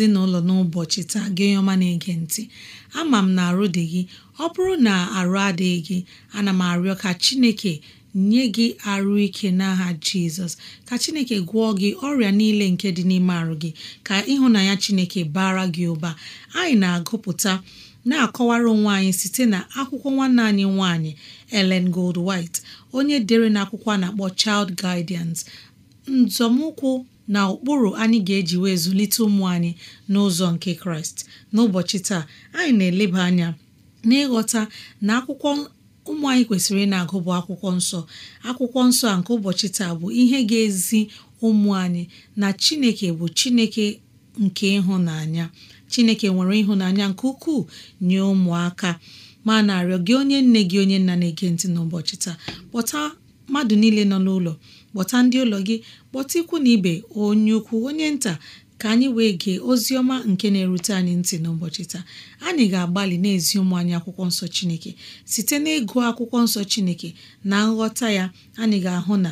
ezinụlọ n'ụbọchị taa gị ọma na-ege ntị ama m na arụ dị gị ọ bụrụ na arụ adịghị gị ana m arịọ ka Chineke nye gị arụ ike n'aha Jizọs ka Chineke gwọọ gị ọrịa niile nke dị n'ime arụ gị ka ịhụnanya Chineke bara gị ụba anyị na-agụpụta na-akọwara onwe anyị site na akwụkwọ nwanne anyị nwanyị Ellen Gold White onye dere na akwụkwọ a na-akpọ Child Guidance nzọmụkwụ na ụkpụrụ anyị ga-eji wee zụlite ụmụ anyị n'ụzọ nke kraịst n'ụbọchị taa anyị na-eleba anya n'ịghọta na akwụkwọ ụmụ anyị kwesịrị ị na-agụ bụ akwụkwọ nsọ akwụkwọ nsọ a nke ụbọchị taa bụ ihe ga-ezi ụmụ anyị na chineke bụ chineke nke ịhụnanya chineke nwere ịhụnanya nke ukwuu nye ụmụaka ma na-arịọ gị onye nne gị onye nna na-ege ntị n'ụbọchị taa kpọta mmadụ niile nọ n'ụlọ kpọta ndị ụlọ gị kpọta ikwu na ibe onye ukwu onye nta ka anyị wee gee ozi ọma nke na-erute anyị ntị n'ụbọchị taa anyị ga-agbalị na-ezi ụmụ anyị akwụkwọ nsọ Chineke site n'ịgụ akwụkwọ nsọ Chineke na nghọta ya anyị ga-ahụ na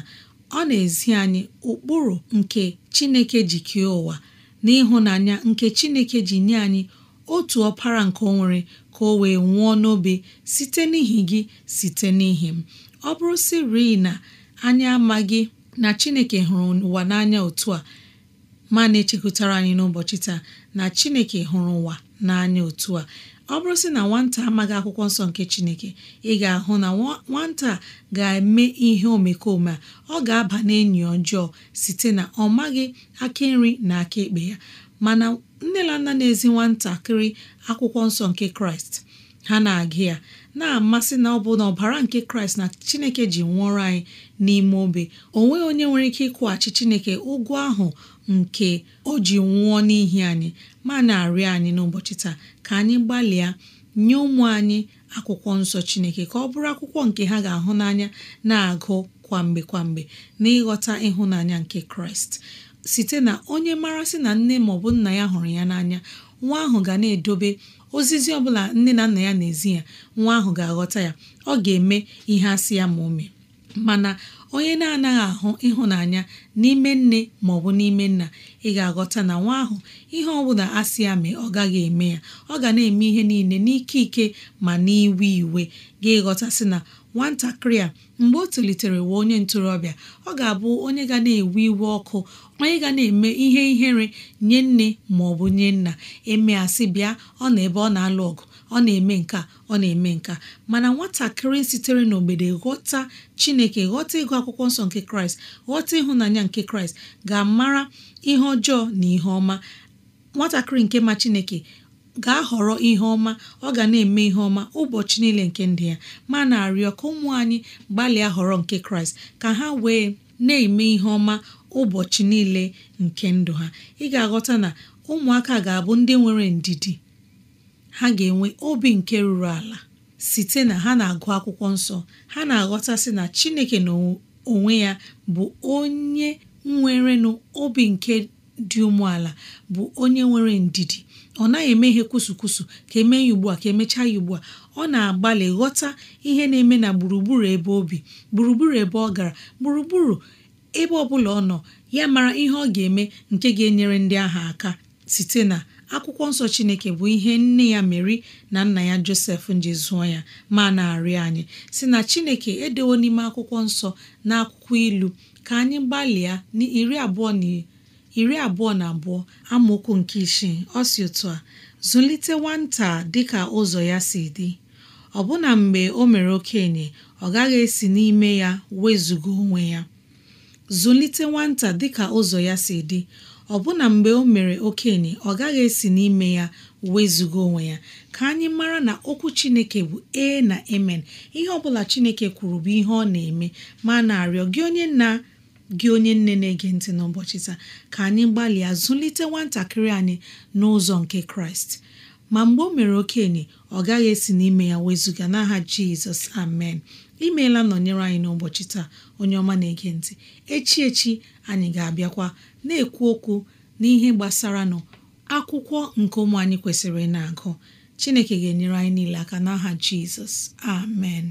ọ na-ezi anyị ụkpụrụ nke Chineke ji kee ụwa ịhụnanya nke Chineke ji nye anyị otu ọpara nke o nwere ka o wee nwụọ n'obe site n'ihi gị site n'ihi m ọ bụrụ sị rii na anyị amaghị na chineke hụrụ ụwa n'anya otu a ma na-echekwutara anyị n'ụbọchị taa na chineke hụrụ ụwa n'anya otu a ọ bụrụ sị na nwata amaghị akwụkwọ nsọ nke chineke ị ga-ahụ na nwata ga-eme ihe omekome a ọ ga-aba n'enyi ọjọọ site na ọ maghị aka nri na aka ekpe ya mana nne na nna na-ezi nwatakịrị akwụkwọ nsọ nke kraịst ha na-agụ ya na-amasị na ọ bụ na ọbara nke kraịst na chineke ji nwụọrọ anyị n'ime obe o nweghị onye nwere ike ịkwụghachi chineke ụgwọ ahụ nke o ji nwụọ n'ihi anyị ma na-arịọ anyị n'ụbọchị taa ka anyị gbalịa nye ụmụ anyị akwụkwọ nsọ chineke ka ọ bụrụ akwụkwọ nke ha ga-ahụ n'anya na-agụ kwamgbe kwamgbe n'ịghọta ịhụnanya nke kraịst site na onye mara sị na nne maọbụ nna ya hụrụ ya n'anya nwa ahụ ga na-edobe ozizi ọ bụla nne na nna ya na-ezi ya nwa ahụ ga-aghọta ya ọ ga-eme ihe asị ya ma o mana onye na-anaghị ahụ ịhụnanya n'ime nne ma ọ bụ n'ime nna ị ga-aghọta na nwa ahụ ihe ọ ọbụla asị ya mee ọ gaghị eme ya ọ ga na-eme ihe niile n'ike ike ma n'iwe iwe ga-ịghọtasị na nwatakịrị a mgbe o tolitere wee onye ntorobịa ọ ga-abụ onye ga na-ewe iwe ọkụ onye ga na-eme ihe ihere nye nne ma ọ bụ nye nna eme asị bịa ọ na ebe ọ na-alụ ọgụ ọ na-eme nka ọ na-eme nka mana nwatakịrị sitere n'obodo ghọta chineke ghọta ịgụ akwụkwọ nsọ nke kraịst ghọta ịhụnanya nke kraịst ga-amara ihe ọjọọ na ihe ọma nwatakịrị nke ma chineke ga họrọ ihe ọma ọ ga na-eme ihe ọma ụbọchị niile nke ndị ya ma na-arịọ ka ụmụ anyị gbalịa họrọ nke kraịst ka ha wee na-eme ihe ọma ụbọchị niile nke ndụ ha ị ga-aghọta na ụmụaka ga-abụ ndị nwere ndidi ha ga-enwe obi nke ruru ala site na ha na-agụ akwụkwọ nsọ ha na-aghọtasị na chineke n'onwe ya bụ onye nwerenụ obi nke dị umeala bụ onye nwere ndidi ọ naghị eme ihe kwụsụ kwụsụ ka emee ya ugbu a ka emechaa ya ugbu a ọ na-agbalị ghọta ihe na-eme na gburugburu ebe obi gburugburu ebe ọ gara gburugburu ebe ọ bụla ọ nọ ya mara ihe ọ ga-eme nke ga-enyere ndị ahụ aka site na akwụkwọ nsọ chineke bụ ihe nne ya meri na nna ya josef nji ya ma na-arịọ anyị si na chineke edewo n'ime akwụkwọ nsọ na akwụkwọ ilu ka anyị gbalịa iri abụọ na iri abụọ na abụọ amaokwu nke isii ọ si otu a zụlite nwata dịka ụzọ ya si dị ọbụna mgbe o mere okenye ọ gaghị esi n'ime ya onwe ya ụzọ ya si dị ọbụna mgbe o mere okenye ọ gaghị esi n'ime ya wezụga onwe ya ka anyị mara na okwu chineke bụ e na emen ihe ọbụla chineke kwuru bụ ihe ọ na-eme ma na-arịọ gị onye na gị onye nne na-ege ntị n'ụbọchị taa ka anyị gbalịa zụlite nwatakịrị anyị n'ụzọ nke kraịst ma mgbe o mere okenye ọ gaghị esi n'ime ya wezụga n'aha jizọs amen imeela nọnyere anyị n'ụbọchị taa onye ọma na-ege ntị echi echi anyị ga-abịakwa na-ekwu okwu n'ihe gbasara nọ akwụkwọ nke ụmụ anyị kwesịrị na-agụ chineke ga-enyere anyị niile aka n'aha jizọs amen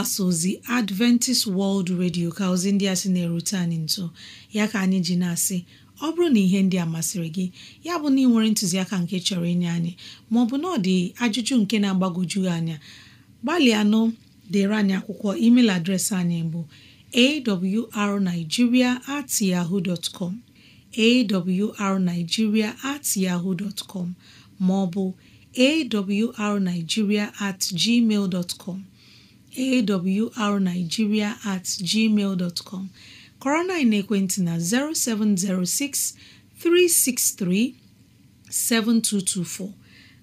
mgbasa ozi Adventist World Radio ka ozi ndị a sị na-erute anyị nso ya ka anyị ji na-asị ọ bụrụ na ihe ndị a masịrị gị ya bụ na ị nwere ntụziaka nke chọrọ inye anyị maọbụ na ọ dị ajụjụ nke na-agbagwoju anya gbalịa nụ dere anyị akwụkwọ email adreesị anyị bụ awrnigeria at yahoo dot com awrnigeria at yahoo dot maọbụ awrnigeria at gmail dot awrnigeria at gmail dot com na ekwentị na 0706 363 7224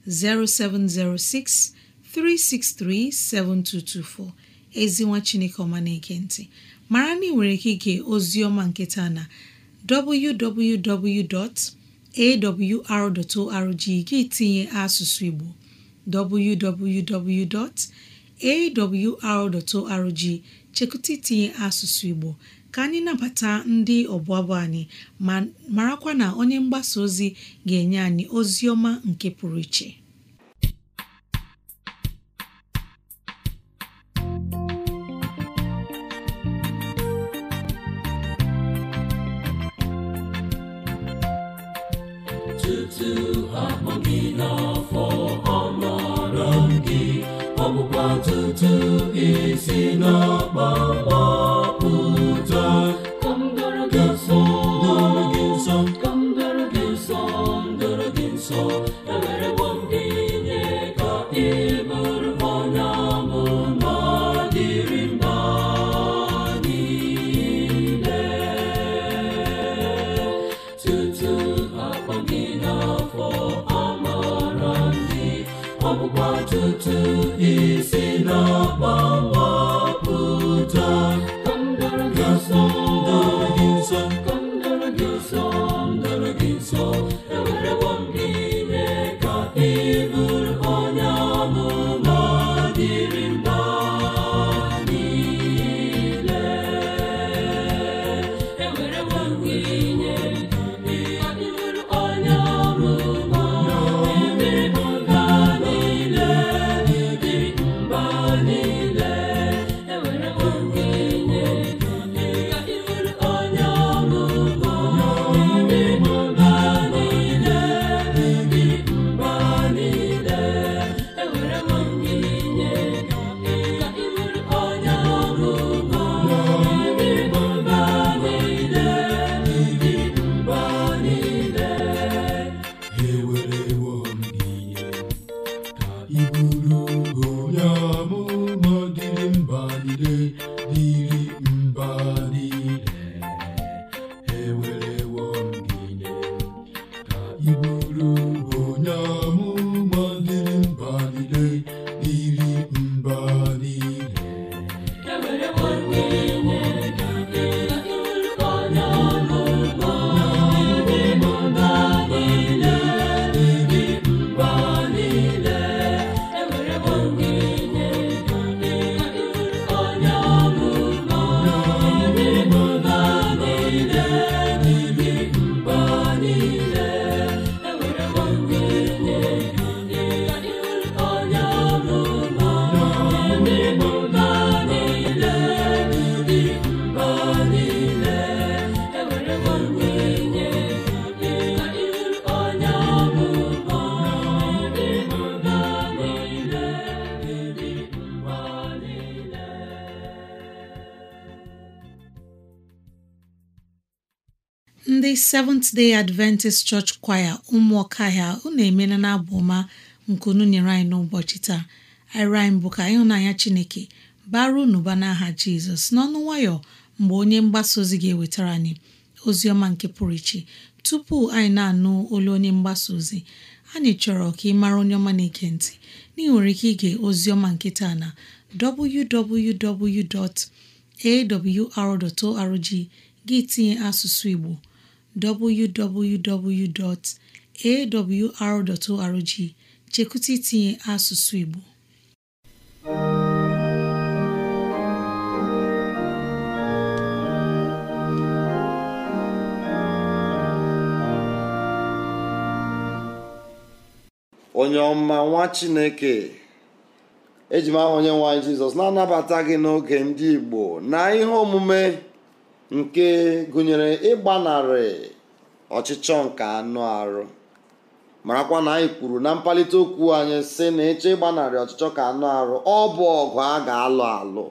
0706 363 7224 ezinwa chineke ọma na ekenti ntị mara na ị nwere ike ozi ọma nketa na www.awr.org gị tinye asụsụ Igbo www. awr.org chekụta itinye asụsụ Igbo ka anyị nabata ndị ọbụabụ anyị ma marakwa na onye mgbasa ozi ga-enye anyị ozi ọma nke pụrụ iche tutu akpọ gị gị ọtụtụ isi n'ọkpọkpọ ömrüm Seventh Day Adventist Church Choir ụmụọka ahịa unu emeela na abụ ọma nkunu nyere anyị n'ụbọchị taa arịrị bụ ka ịhụnanya Chineke bara n'ụba n'aha Jizọs n'ọnụ nwayọ mgbe onye mgbasa ozi ga-ewetara anyị ozi ọma nke pụrụ iche tupu anyị na-anụ olu onye mgbasa ozi anyị chọrọ ka ị mara onye ọma na ntị na ị nwere ike ige oziọma nke taa na www.awr.org gị tinye asụsụ Igbo www.awr.org chekwụta itinye asụsụ Igbo onye ọma nwa Chineke eji m aha onye nwe Jizọs na-anabata gị n'oge ndị Igbo na ihe omume nke gụnyere ịgbanarị ọchịchọ nke anụ arụ marakwa na anyị kwuru na mkpalite okwu anyị sị na ịchọ ịgbanarị ọchịchọ ka anụ arụ ọ bụ ọgụ a ga-alụ alụ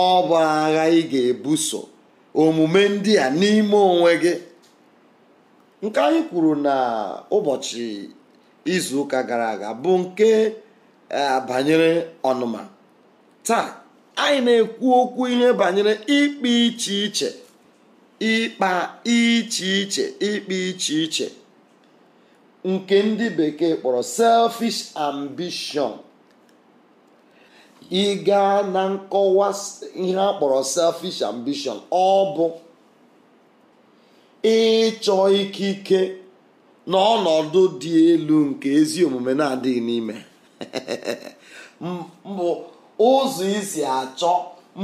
ọ bụ agha ị ga-ebuso omume ndị a n'ime onwe gị nke anyị kwuru na ụbọchị izu ụka gara aga bụ nke eh, banyere ọnụma taa anyị na-ekwu okwu ihe banyere ikpe iche iche ikpa iche iche ikpe iche iche nke ndị bekee kpọrọ selfish ambition ịga na nkọwa ihe a kpọrọ selfish ambition ọ bụ ịchọ ikike n'ọnọdụ dị elu nke ezi omume na-adịghị n'ime mbụ ụzọ isi achọ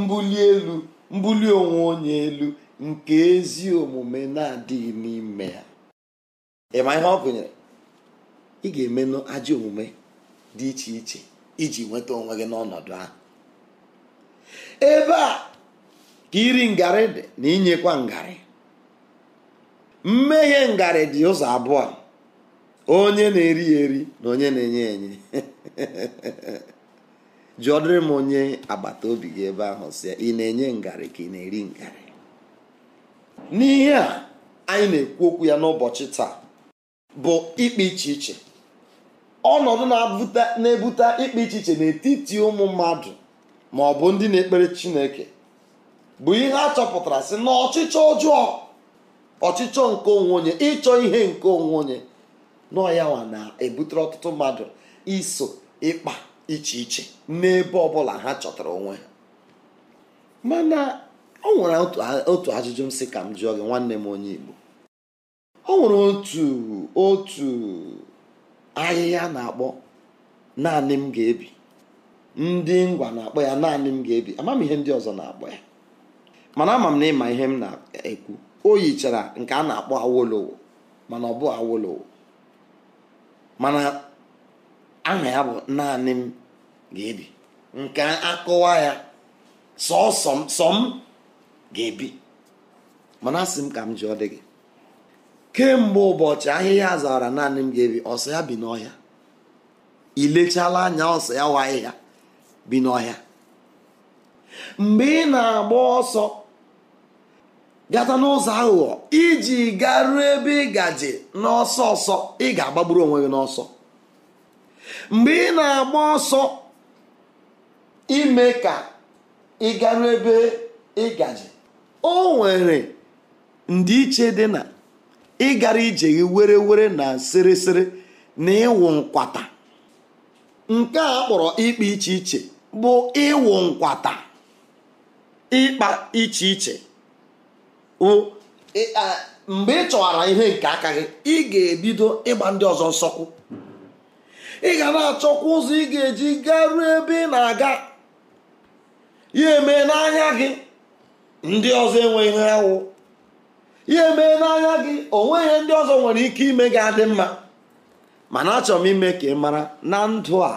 mbuli elu mbuli onwe onye elu nke ezi omume na-adịghị n'ime ya ịma ihe ọ gụnyere ị ga-emenụ ajọ omume dị iche iche iji nweta onwe gị n'ọnọdụ ahụ ebe a ka iri ngarị dị na inyekwa ngarị mmehie ngarị dị ụzọ abụọ onye na-eri eri na onye na-enye enye jụọdịrị m onye agbata obi gị ebe ahụ si ị na-enye ngarị ka ị na-eri ngarị n'ihe a anyị na-ekwu okwu ya n'ụbọchị taa bụ ikpe iche iche ọnọdụ na-ebute ikpe iche iche n'etiti ụmụ mmadụ ma ọ bụ ndị na-ekpere Chineke bụ ihe a chọpụtara sị na ọchịchọ ọjọọ ọchịchọ nke onwe onye ịchọ ihe nke onwe onye nọ ya na-ebutere ọtụtụ mmadụ iso ịkpa iche iche n'ebe ọbụla ha chọtara onwe ha mana ọ nwere otu ajụjụ m sị ka m jụọ gị nwanne m onye Igbo ọ nwere otu otu ahịhịa na-akpọ naanị m ga-ebi ndị ngwa na-akpọ ya naanị m ga-ebi ama m ihe ndị ọzọ na-akpọ ya mana ama m na ịma ihe m na-ekwu o yichara nke a na-akpọ awolowo mana ọ bụ awolowo aha ya bụ naanị m ga-ebi nke akọwa ya sọsọ m ga-ebi mana asị m ka m ji ọ dị gị kemgbe ụbọchị ahịhịa zara naanị m ga-ebi ọsọ ya bi n'ọhịa ilechala anya ọsọ ya wa ahịhịa bi n'ọhịa mgbe ị na-agba ọsọ gata n'ụzọ aghụghọ iji garuo ebe ị gaje n'ọsọ ọsọ ị ga-agbagburu onwe gị n'ọsọ mgbe ị na-agba ọsọ ime ka ị garuo ebe ịgaji o nwere ndịiche dị na ịgara ije gị were were na sịrịsịrị na ịwụ nkwata nke a kpọrọ ịkpa iche iche bụ ịwụ nkwata ịkpa iche iche mgbe ị chọwara ihe nke aka gị ị ga-ebido ịgba ndị ọzọ nsọkwu ị ga na-achọkwa ụzọ ị ga-eji garuo ebe ị na-aga ya emee n'anya gị ndị ọzọ enweghị ihe awụ ya emee n'anya gị ihe ndị ọzọ nwere ike ime gị adị mma mana achọrọ m ime ka ị mara na ndụ a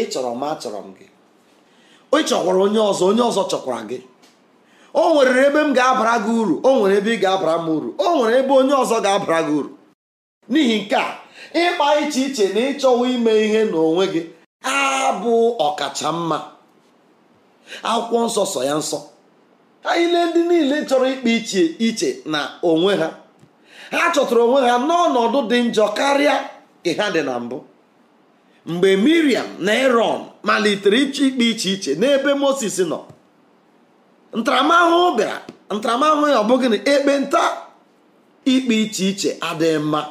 ị chọrọ m achọrọ m gị ị chọkwara onye ọzọ onye ọzọ chọkwara gị o nwere ebe m ga-abara gị uru o nwere ebe ị ga-abara m uru o nwere ebe onye ọzọ ga-abara gị uru n'ihi nke a ịkpa iche iche na ịchọwa ime ihe n'onwe gị abụ ọkacha mma akwụkwọ nsọ sọ ya nsọ ha ile ndị niile chọrọ ịkpa iche iche na onwe ha ha chọtara onwe ha n'ọnọdụ dị njọ karịa ka ha dị na mbụ mgbe miriam na eron malitere ịchọ ikpe iche iche n'ebe moses nọ ntaramahụhụ bịara ntaramahụhụ ya ọ bụghị na ekpenta ikpe iche iche adịghị mma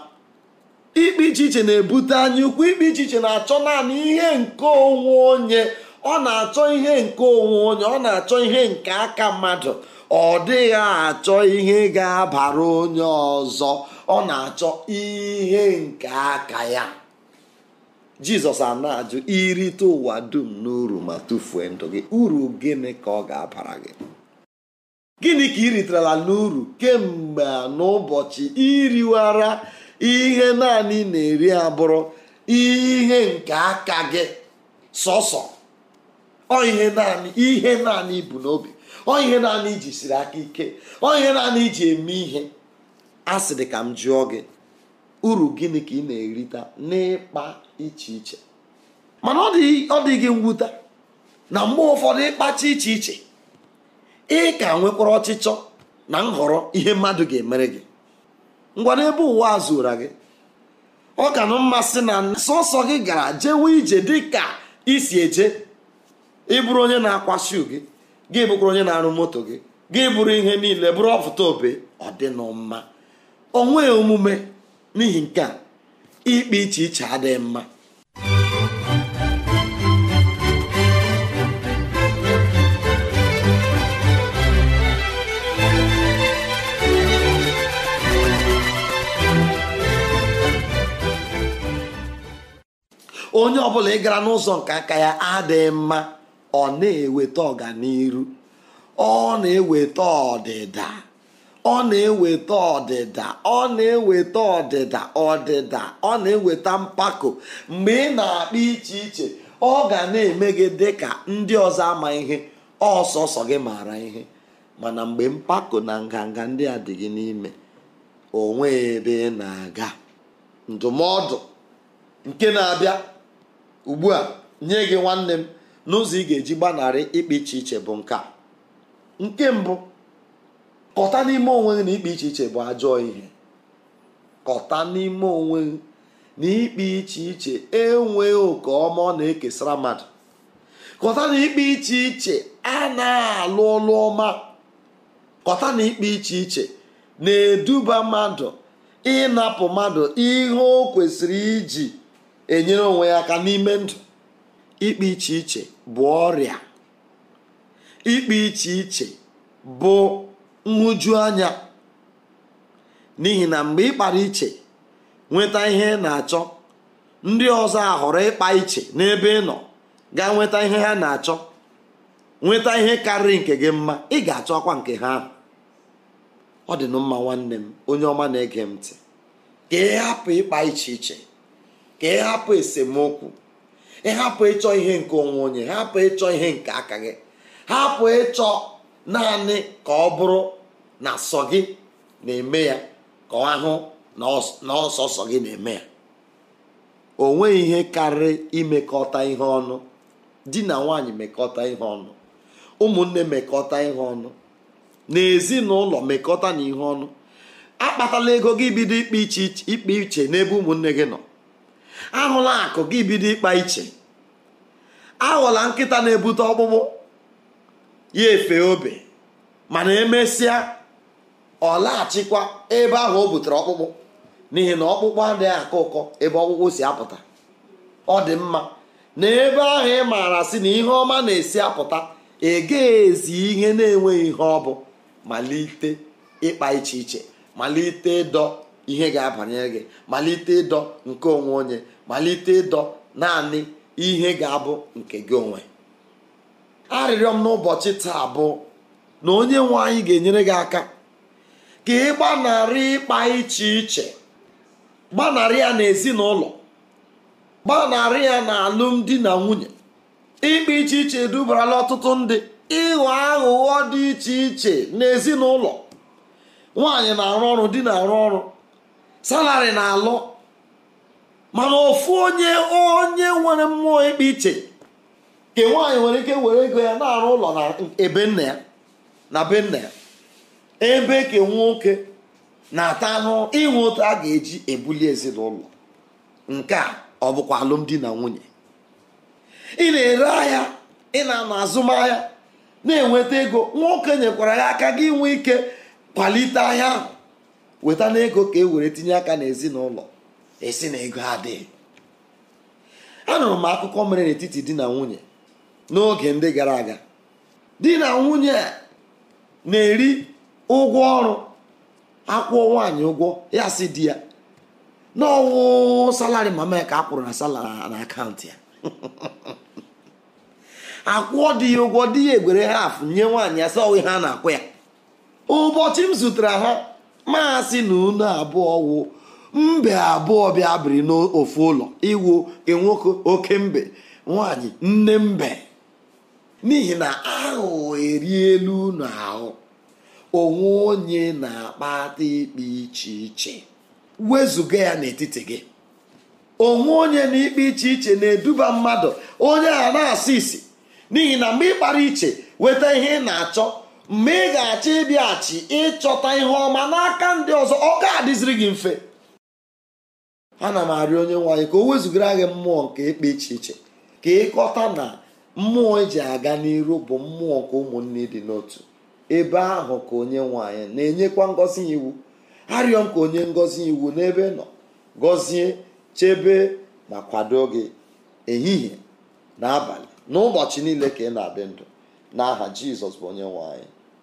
ikpe iche iche na-ebute anya ukwu ikpe iche iche na-achọ naanị ihe nke onwe onye ọ na-achọ ihe nke onwe onye ọ na-achọ ihe nke aka mmadụ ọ dịghị achọ ihe ga-abara onye ọzọ ọ na-achọ ihe nke aka ya jizọs a na-ajụ irite ụwa dum n'uru ma tufuo ndụ gị uru gịnị ka ọ ga-abara gị gịnị ka ị riterela n'uru kemgbe n'ụbọchị iriwara ihe naanị na-eri abụrụ ihe nke aka gị sọsọ ọ ihe naanị ihe naanị ibu n'obi ọ ihe naanị iji siri aka ike ọ ihe naanị iji eme ihe a sị ka m jụọ gị uru gịnị ka ị na-erita n'ịkpa iche iche mana ọ dị gị mwute na mgbe ụfọdụ ịkpacha iche iche ị ka nwekwara ọchịchọ na nhọrọ ihe mmadụ ga-emere gị ngwa ebe ụwa a zụra gị ọ ka na mmasị na sọsọ gị gara jewe ije dị ka isi eje ịbụrụ onye na-akwa shu gị gị bụkwara onye na-arụ moto gị gị bụrụ ihe niile bụrụ ọfụta obe ọ dị mma onweghị omume n'ihi nke a ikpe iche iche adịghị mma onye ọbụla ị gara n'ụzọ nke aka ya adịghị mma ọ na-eweta ọganiru ọ na-eweta ọdịda ọ na-eweta ọdịda ọ na-eweta ọdịda ọdịda ọ na-eweta mpako mgbe ị na-akpa iche iche ọ ga na-eme gị dị ka ndị ọzọ ama ihe ọsọsọ gị mara ihe mana mgbe mpako na nganga ndị a dị gị n'ime onwe ebe na-aga ndụmọdụ nke na-abịa ugbu a nye gị nwanne m n'ụzọ ị ga-eji gbanarị ikpe iche iche bụ nke nke mbụ kọta n'ime onwe gị na ikpe iche iche bụ ajọ ihe kọta n'ime onwe na ikpe iche iche enweghị oke ọma ọ na-ekesara mmadụ kọta na ikpe iche iche na alụ ọlụ ọma kọta na ikpe iche iche na-eduba mmadụ ịnapụ mmadụ ihe o kwesịrị iji enyere onwe ya aka n'ime ndụ ikpe iche iche bụ ọrịa ikpe iche iche bụ nhụjuanya n'ihi na mgbe ịkpara iche nweta ihe na-achọ ndị ọzọ ahọrọ ịkpa iche n'ebe ịnọ nọ gaa nweta ihe ha na-achọ nweta ihe karịrị nke gị mma ị ga-achọ ọkwa nke ha ọ dị mma nwanne m onye ọma na-ege m ntị ka ịkpa iche iche ka ị hapụ esemokwu ị hapụ ịchọ ihe nke onwe onye hapụ ịchọ ihe nke aka gị hapụ ịchọ naanị ka ọ bụrụ na sọ gị na-eme ya ka ọ hụ na ọsọsọ gị na-eme ya o nweghị ihe karịrị imekọta ihe ọnụ di na nwanyị mekọta ihe ọnụ ụmụnne mekọta ihe ọnụ na ezinụlọ mekọta na ihe ọnụ akpatala ego gị bido ikpe iche n'ebe ụmụnne gị nọ ahụla akụ gị bido ịkpa iche aghọla nkịta na-ebute ọkpụkpụ ya efe obe mana emesịa ọ laghachikwa ebe ahụ o butere ọkpụkpụ n'ihi na ọkpụkpụ adịghị akọ ụkọ ebe ọkpụkpụ si apụta ọ dị mma na ebe ahụ ị maara sị na ihe ọma na-esi apụta ezi ihe na-enweghị ihe ọ bụ malite ịkpa iche iche malite dọ ihe ga-abanyere gị malite ịdọ nke onwe onye malite ịdọ naanị ihe ga-abụ nke gị onwe arịrịọ m n'ụbọchị taa bụ na onye nwe anyị ga-enyere gị aka ka ị gbanarị ịkpa iche iche gbanarị ya n'ezinụlọ gbanarị ya na alụmdi na nwunye ịkpa iche iche edubarala ọtụtụ ndị ịghọ aghụghọ dị iche iche n'ezinụlọ nwaanyị na-arụ ọrụ di na-arụ ọrụ salari na-alụ mana ofu onye onye nwere mmụọ ikpe iche nke nwaanyị nwere ike were ego ya na-arụ ụlọ na ebe nna ya na be nna ya ebe ka nwoke na-ata anụ inwe otu a ga-eji ebuli ezinụlọ nke a ọ bụkwa alụmdi na nwunye ị na-ere ahịa ị na-anọ azụmahịa na-enweta ego nwoke nyekwara ya aka gị nwee ike kwalite ahịa ahụ weta na ego ka e were tinye aka n'ezinụlọ esi na ego adịghị anụrụ m akụkọ mere n'etiti di na nwunye n'oge ndị gara aga di na nwunye a na-eri ụgwọ ọrụ akwụọ nwaanyị ụgwọ ya si di ya n'ọwụ salari mama ka a na salari na akaụntụ ya akwụọ di ya ụgwọ di ya egwere afụ nye nwaanyị ya sa ọwụ ha na-akwụ ya ụbọchị m zụtara ha maasị na unu abụọ wụ mbe abụọ bịa biri n'ofu ụlọ iwu nwoke oke mbe nwanyị nne mbe n'ihi na ahụ elu unu ahụ onwe onye na-akpata ikpe iche iche wezụga ya n'etiti gị onwe onye na ikpe iche iche na-eduba mmadụ onye a na-asị isi n'ihi na mgbe ị iche weta ihe ị na-achọ mgbe ị ga-achọ ịbịaghachi ịchọta ihe ọma n'aka ndị ọzọ ọ ga-adịziri gị mfe ana m arịọ onye nwaanyị ka o wezugara gị mmụọ nke ikpe iche iche ka ịkọta na mmụọ eji aga n'iru bụ mmụọ nke ụmụnne dị n'otu ebe ahụ ka onye nwaanyị na-enyekwa ngọzi iwu arịọ m ka onye ngọzi iwu n'ebe nọ gọzie chebe ma kwado gị ehihie na abalị n'ụbọchị niile ka ị na-adị ndụ n'aha jizọs bụ onye nwaanyị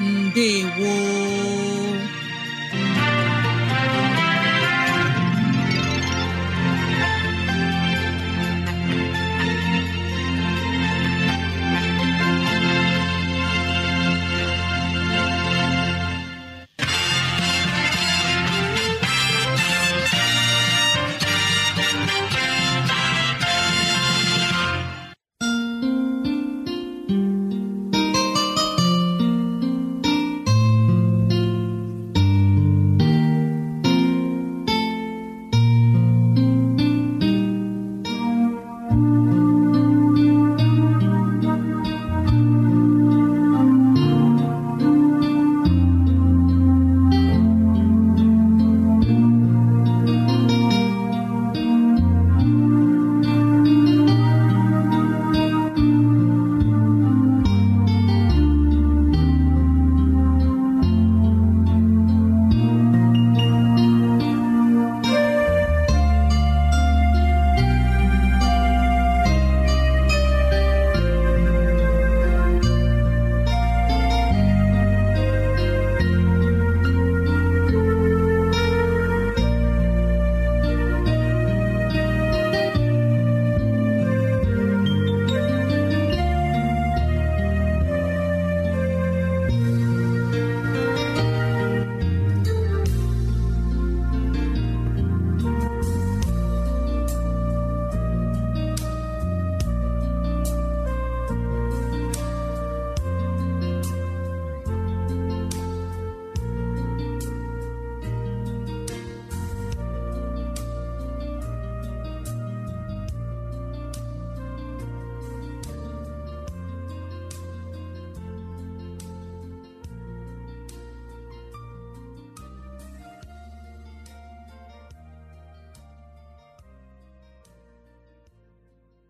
ndewo